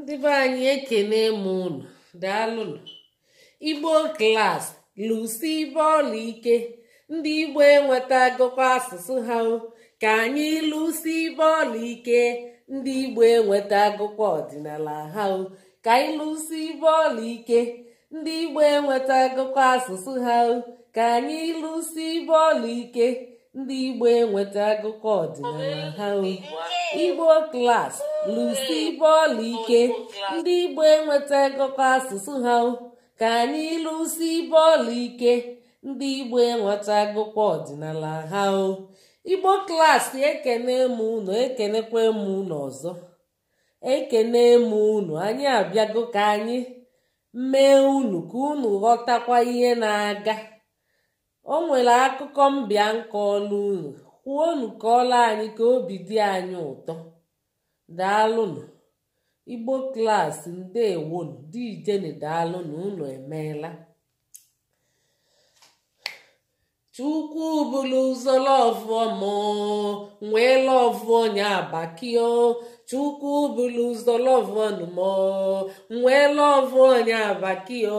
ndị be anyị ekene m unu daalụnụ igbo klas lụsi ibe ọla ike ndị igbo enweta enwetagokwa asụsụ ha ka anyị lụsi ibe ọla ike ndị igbo enweta enwetagokwa ọdịnala ha ka anyị lụsi ibe ọla ike ndị igbo enweta enwetagokwa asụsụ ha ka anyị lụsi ibe ọla ike ndị igbo enweta enwetagokwa ọdịnala ha igbo klas lụsi bọọlụ ike ndị Igbo enweta ịgụkọ asụsụ ha ka anyị lụsi bọọlụ ike ndị Igbo enweta agụkọ ọdịnala ha o Igbo klaasị ekene m unu ekenekwa m unu ọzọ ekene m unu anyị abịago ka anyị mee unu ka unu ghọtakwa ihe na-aga o nwere akụkọ mbịa nkọọlụ unu kwuo unu ọla anyị ka obi dị anyị ụtọ daalụnụ igbo klaasị ndewonu dijeni daalụnụ unu emeela chukwu bụlụ ụzọ lọvụọ mụ nwee lọvụ onye abakio chukwu bụlụ ụzọ lọvụọ nụ mụ nwee lọvụ onye abakio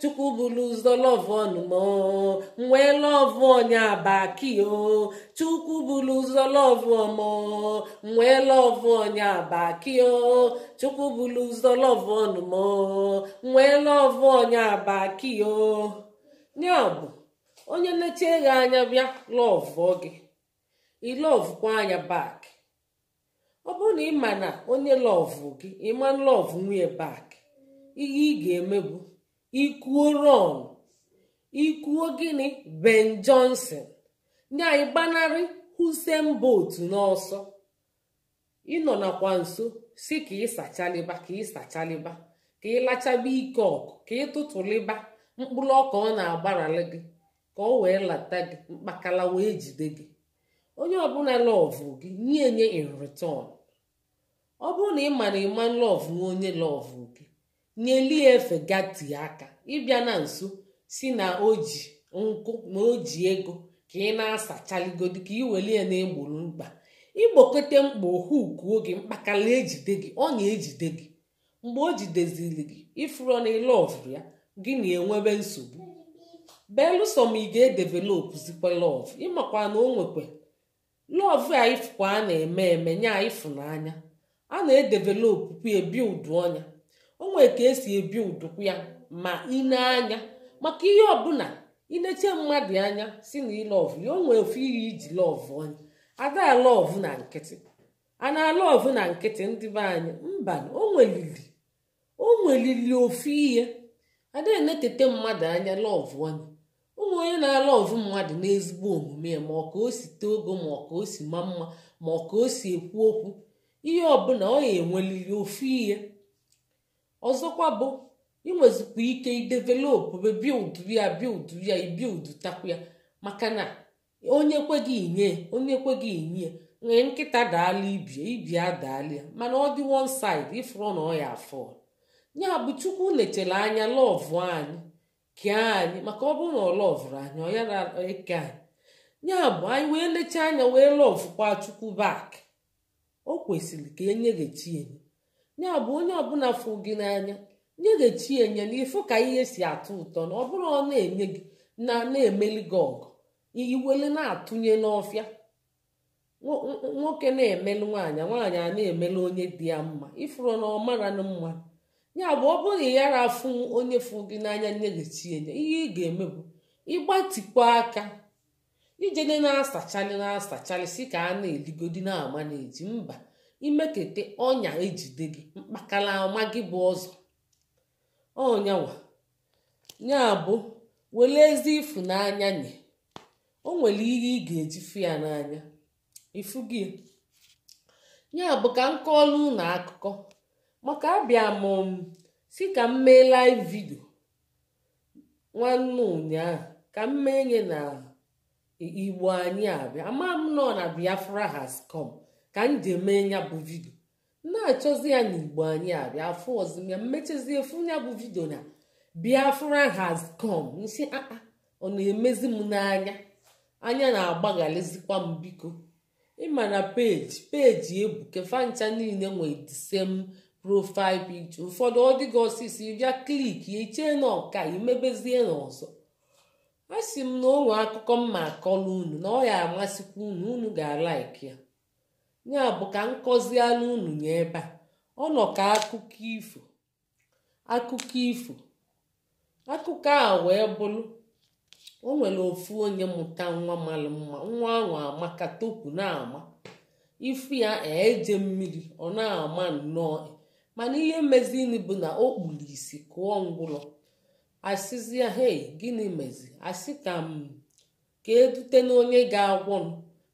chukwu bụlụ ụzọ lọvụ ọnụmọ nwee lọvụ onye abakio chukwu bụlụ ụzọ lọvụ ọmọ nwee lọvụ onye abakio chukwu bụlụ ụzọ lọvụ ọnụmọ nwee lọvụ onye abakio ya bụ onye na-eche gị anya bịa lọvụ gị ilọvụkwa anya bak ọ bụrụ na ị ma na onye lọvụ gị ịma lọvụ nwunye bak ihe ị ga-emebu ikwuo ron ikwuo gịnị ben johnson ndị anyị gbanarị husen bot n'ọsọ ịnọ nakwa nso si ka ịsachaliba ka ị ịsachaliba ka ịlachaba ike ọkụ ka ịtụtụliba mkpụrụ ọka ọ na-agbarali gị ka ọ wee lata gị mkpakala wee jide gị onye ọbụla lọvụ gị nye nye in ọ bụrụ na ị ma na ịma lọvụ onye lọvụ gị nyeli ya efe gati aka ịbịa na nso si na o ji nkụ na o ji ego ka ị na-asachaligodu ka ị weli ya na-egboro mkpa igbokọte mkpa ohuku oge mkpakala ejide gị ọ na-ejide gị mgbe o jideziri gị ifuro na ịlọvụ ya gị na-enwebe nsogbu belụsọ ma ị ga-edevelopụzikwa lọv ịmakwa na o nwekwa lọv a ifụkwa a na-eme eme nye ifụnanya a na ebi ụdụ ọnya onwere ka esi ebi udukwu ya ma ine anya maka ihe ọbụla inete mmadụ anya si na ilọvụ ya o ofe ofu ihe iji lọv anya ada alọvụ na nkịtị a na na nkịtị ndị be anyị mba onwelili onwelili ofu ihe na-etete mmadụ anya lọv anya ụmụ onye na-alọvụ mmadụ n'ezigbo omume ma ọ ka o si tee ogo ma ọ ka o si ma mma ma ọ ka o si ekwu okwu ihe ọbụla ọ ya enwelili ofu ihe ọzọkwa bụ inwezikwa ike idevelopụ bild ya bild ya ibild takwu ya maka na onye ekweghị inye onye ekweghị inye nwee nkịta daala ibie ibie adaala ya mana ọ dị one side ifụrụ na ọ ya afọ ya bụ chukwu lechere anya lọvụ anyị kee anyị maka ọ bụrụ na ọ lọvụrụ anyị ọ yara eke anyị ya bụ anyị wee lecha anya wee lọvụkwa chukwu bak o kwesịrị ka enye ghachi enye ya bụ onye ọbụla fụ gị n'anya nye ga-echi enye na ịfụ ka ihe si atọ ụtọ na ọ bụrụ ọ na-enye gị na na-emeli gị ọgụ iwele na-atụnye n'ọfịa nwoke na-emelụ nwaanyị nwaanyị a na-emelụ onye dị ya mma ifuru na ọmara na mma ya bụ ọ bụrụ yara afụ onye fụ gị n'anya nye ga-echi enye ihe ị ga-eme bụ ịgbatikwa aka ijede na-asachalị na-asachalị si ka a na-eligodi na-ama na eji mba imekete ọnya ejide gị mkpakala ọma gị bụ ọzọ ọnyanwa ya bụ were ezi ifu na-anya nye o nwere ihe ị ga-eji fụ ya n'anya ifu gị ya bụ ka m kọọlụ ụlọ akụkọ maka abịa m si ka m mee live video nwanne ụnyaahụ ka m mee nye na igbo anyị abịa ama nọ na biafra has come ka m ji eme ya bụ vidio na-achọzi ya n'igbo anyị a bịa afọ ọzọ mmechazie efu ya bụ vidio na biafra has come nsi aa ah, ah, ọ na-emezi m n'anya anya na-agbaghalịzikwa m biko ịma na peji peji ebuke fancha niile nwee the same profile picture ụfọdụ ọ dịghị ọsịsọ ịbịa kliki ichee na ọka imebezie n'ọzọ a sị m na onwe akụkọ mma akọla unu na ọ ya amasịkwa unu unu ga-alaiki ya ya bụ ka nkọzi unu nye ebe a ọ nọ ka akụkọ ifo akụkọ ifo akụkọ a wee bụrụ o nwere ofu onye mụta nwa mara mma nwa ahụ amaka topụ na-ama ifu ya eje mmiri ọ na-ama nnọọ mana ihe mezini bụ na o kpuru isi kụọ ngwụlọ asịzịa hei gịnị mezi asị ka m hmm, ka edute n'onye ga-agwọ m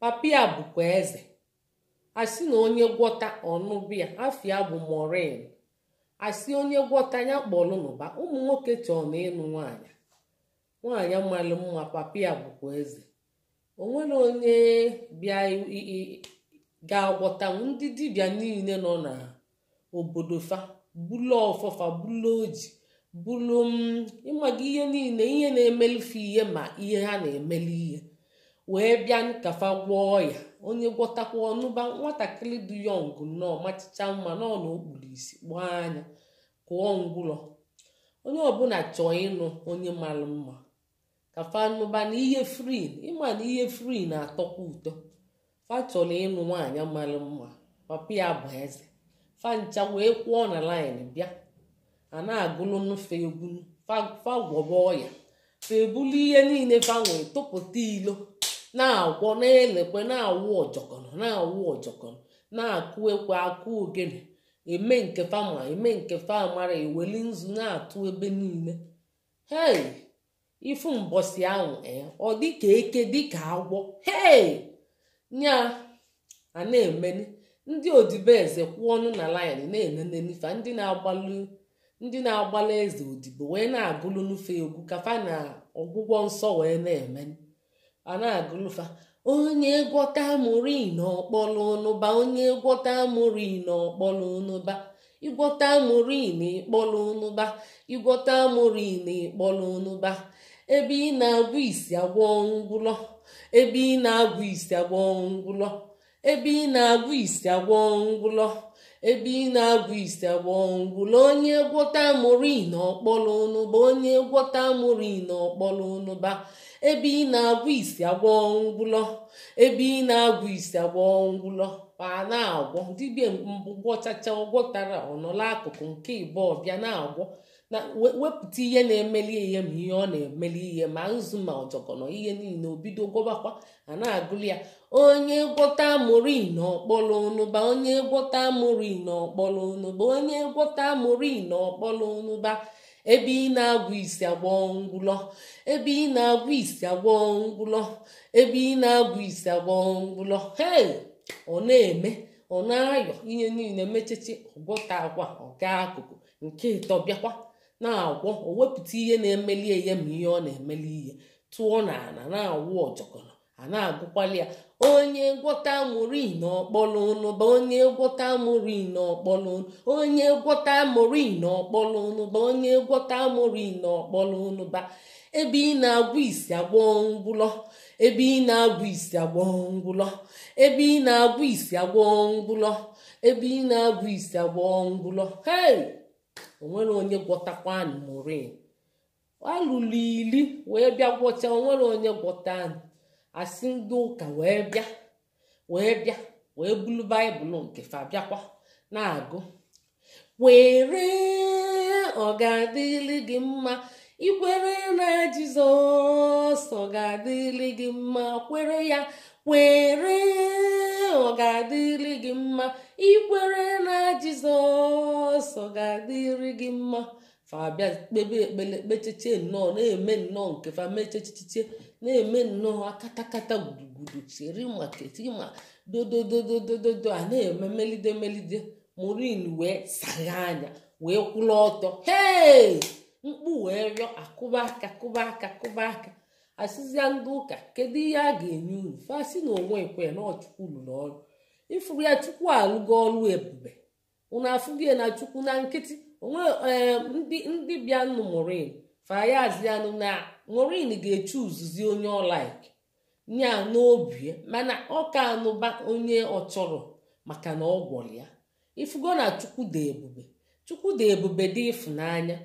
papa ya bụkwa eze asi na onye gwọta ọnụbịa afia bụ morin asi onye gwọta ya kpọlụnụba ụmụ nwoke chọọ na ịnụ nwaanyị nwaanyị malụ mma papa ya bụkwa eze onwere onye bịa ga-agwọta ndị dibịa niile nọ na obodo fa bulu ọfọfa bulu oji bulu mm, ịmaga ihe niile ihe na-emelife ihe ma ihe ha na-emeli ihe wee bịa nkafa gwọọ ya onye gwọtakwa ọnụba nwatakịrị dị yọng nnọọ machicha mma nọ na isi gbaa anya kụọ ngwụlọ onye ọbụla chọọ ịnụ onye mara mma ka fanụba na ihe frin ịma na ihe frin na-atọkwa ụtọ fa chọrọ ịnụ nwaanyị mara mma papa ya bụ eze ncha wee kwụọ na laịn bịa a na-agụlụ egwu fa gwọba ọya fa ebulu ihe niile fa nwere tụpụta ilo na-agwọ na-elekwe na-awụ ọjọkọnọ na-awụ ọjọkọnọ na-akụ ekwe akụ ogene eme nke fama eme nke famara eweli nzu na-atụ ebe niile hei ifu mbọsi ahụ e, ọ dịka eke dịka agwọ hei nya a na-emeni ndị odibeeze kwụ ọnụ na laịn na-enenenifa ndị na-agbalụ ndị na agbalị eze odibo wee na-agụlụ n'ufe egwu kafa na ọgwụgwọ nsọ wee na-emeni a na onye gwọta mụri n'ọkpọlụ onye gwọta mụri n'ọkpọlụ ụnụba ịgwọta amụrụ n'ịkpọlụ ebe ị na-agwụ isi ebe ị na-agwụ isi agwọ ngwụlọ isi agwọ ngwụlọ ebe ị na-agwụ ise agbọngwụla onye gwọta mụrụ na ọkpọrọ ụnụba onye gwọta mụrụ na ọkpọrọ ụnụba ebe ị na-agwụ ise agbọngwụlọ ebe ị na-agwụ ise agbọngwụlọ ma na-agwọ dibịa gwọchacha ọgwọtara ọnọla akụkụ nke ịbụ ọbịa na-agwọ na wepụta ihe na-emeli ihe ma ihe ọ na-emeli ihe ma nzu ma ọjọkọ nọ ihe niile o bido gwọbakwa a na-agụli ya onye gwọta amụrụ na ọkpọlọ onụba onye gwọta amụrụ na ọkpọlọ onụba onye gwọta amụrụ na ọkpọlọ onụba ebe ị na-agwụ isi agwọ ngwụlọ ebe ị na-agwụ isi agwọ ngwụlọ ebe ị na-agwụ isi agwọ ngwụlọ hei ọ na-eme ọ na-ayọ ihe niile mechichi ọgwọta agwa ọga akụkụ nke ịtọ bịakwa na-agwọ o wepụta ihe na-emeli ihe ma ihe ọ na-emeli ihe tụọ n'ala na-awụ ọjọkọ a na-agụkwali ya onye gwọta mori n'ọkpọlụnụ bụ onye gwọta mori n'ọkpọlụnụ onye gwọta mori n'ọkpọlụnụ bụ onye gwọta mori n'ọkpọlụnụ ba ebe ị na-agwụ isi agwọ ngwụlọ ebe ị na-agwụ isi agwọ ngwụlọ ebe ị na-agwụ isi agwọ ngwụlọ ebe ị na-agwụ isi agwọ ngwụlọ hei onwere onye gwọtakwa mori alụlụ ili wee bịa gwọcha onwere onye gwọta anyị asị ndị ụka wee bịa wee bịa wee bulu baịbụl nke fa na-agụ were ọ ga-adịrị gị mma ikwere na jizọs ọ ga-adịrị gị mma kwere ya were ọ ga-adịrị gị mma ikwere na jizọs ọ ga-adịrị gị mma fa bịa ekpele kpecheche nnọọ na-eme nnọọ nke fa mechechiche na-eme nnọọ akatakata gudugudu cheri keti ma dodododododo a na-eme melide melide morin wee sagha anya wee kwụla ọtọ hee mkpu wee rịọ akụba aka kụba aka kụba aka asịzịa ndị ụka kedu ihe a ga-enye unu fasị na onwe ekwe na ọchukwu lụrụ ọrụ ịfụrụ ya chukwu alụgo ọrụ ebube unu afụghị na chukwu na nkịtị ee eh, ndị bịanụ morin fayazianụ na morin ga-echu uzuzi onye ọlaik nya n'obi mana ọ ka anụba onye ọ chọrọ maka na ọ gwọrọ ya ifugo na dị ebube dị ebube dị ịfụnanya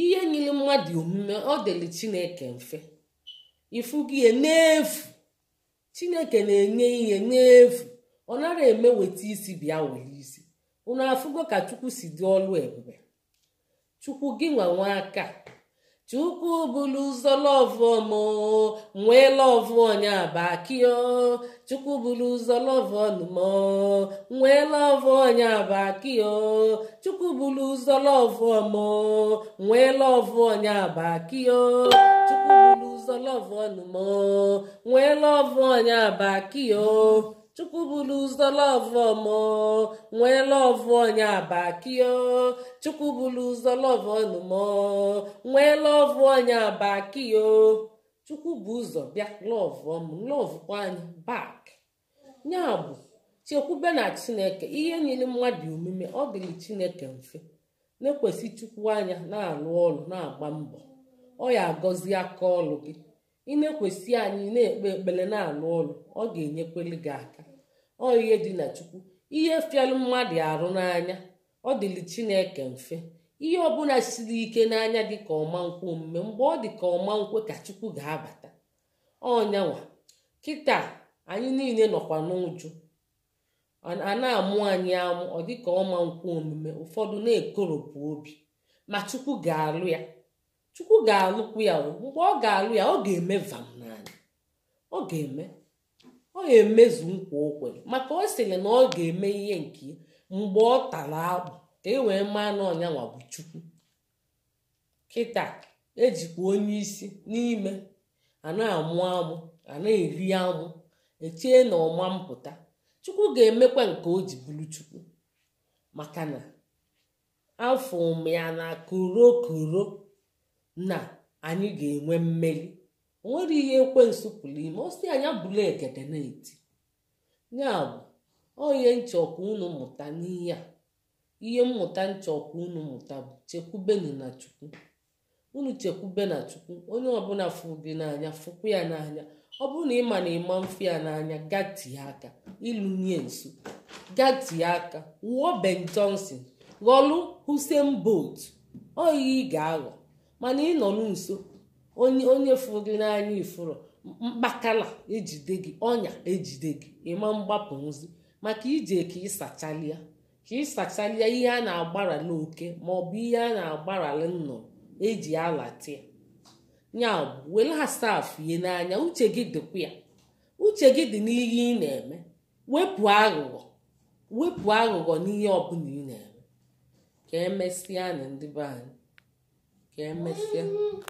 ihe nyere mmadụ omume ọ dịrị chineke mfe ifugo ihe n'efu chineke na-enye ihe n'efu ọ nara eme weta isi bịa were isi ụnụ afụgo ka chukwu si dị ọlụ ebube chukwu gị nwanwe aka chukwu bụlu ụzọ lọvọmo nwee lọvụ onya bakio chukwu bụlu ụzọ lọvọnmo nwee lọvụ onya bakio chukwu bụlu ụzọ lọvọmo nwee lọvụ onya bakio chukwu bụlu ụzọ lọvọnmo nwee lọvụ onya bakio chukwu ụzọ lọvụ ọmọ nwee lọvụ onye abakio chukwu bụlụzọ lọvụ ọnụmọ nwee lọvụ onye abakio chukwu bụ ụzọ bịa lọvụ ọmụ lọvụkwa anyị bak nyabụ bụ chekwube na chineke ihe nyere mmadụ omume ọ dịrị chineke mfe na-ekwesị chukwu anya na-alụ ọrụ na-agba mbọ ọ ya agọzi aka ọrụ gị ị na-ekwesị anyị na-ekpe ekpere na-alụ ụlọ ọ ga-enyekwere gị aka ọ ihe dị na chukwu ihe fịalụ mmadụ arụ n'anya ọ dịlị chineke mfe ihe ọbụla siri ike n'anya dị ka ọma nkwụ omume mgbe ọ dị ka ọma nkwe ka chukwu ga-abata ọnyanwa kịta anyị niile nọkwa n'ụjụ a na-amụ anyị amụ ọ dịka ọma nkwụ omume ụfọdụ na-ekoropụ obi ma chukwu ga-alụ ya chukwu ga-alụkwu ya mgbe ọ ga-alụ ya ọ ga-eme vam ọ ga-eme ọ ga-emezu nkwa okwe maka ọ sịrị na ọ ga-eme ihe nke mgbe ọ tara akpụ ka e wee mee na ọnya bụ chukwu kịta ejikwa onye isi n'ime ana-amụ amụ amụ ana e eri amụ echie na ọma mpụta chukwu ga-emekwa nke o ji bụrụ chukwu maka na afọ ụmụ ya na korokoro na anyị ga-enwe mmeri o nwere ihe ekwe pụrụ ime osi anya bụla ekete na-eti ya bụ onye nchọkwa unu mụta n'ihe a ihe mmụta nchọkwa unu mụta bụ chekwubenu na chukwu unu chekwube na chukwu onye ọbụla fụrụ n'anya fụkwa ya n'anya ọ bụrụ na na ịma mfe ya n'anya gatie aka ịlụnye nso gatie aka wụọ Ben Johnson ghọlụ husen bot ọ ị ga-aghọ mana nọ n'nso onye fụrụ gị n'anya ifuru mkpakala ejide gị ọnya ejide gị ịma mgbapụ nzi maka ije ka ịsachalia ka ịsachalia ihe a na-agbara n'oke maọbụ ihe a na-agbarali nnụnụ eji alatia ya bụ were ihe n'anya uche gị dịkwa ya uche gị dị n'ihe ị na-eme wepụ aghụghọ wepụ aghụghọ n'ihe ọbụla ị na-eme ka emesịa na ndị be anyị Can I miss you.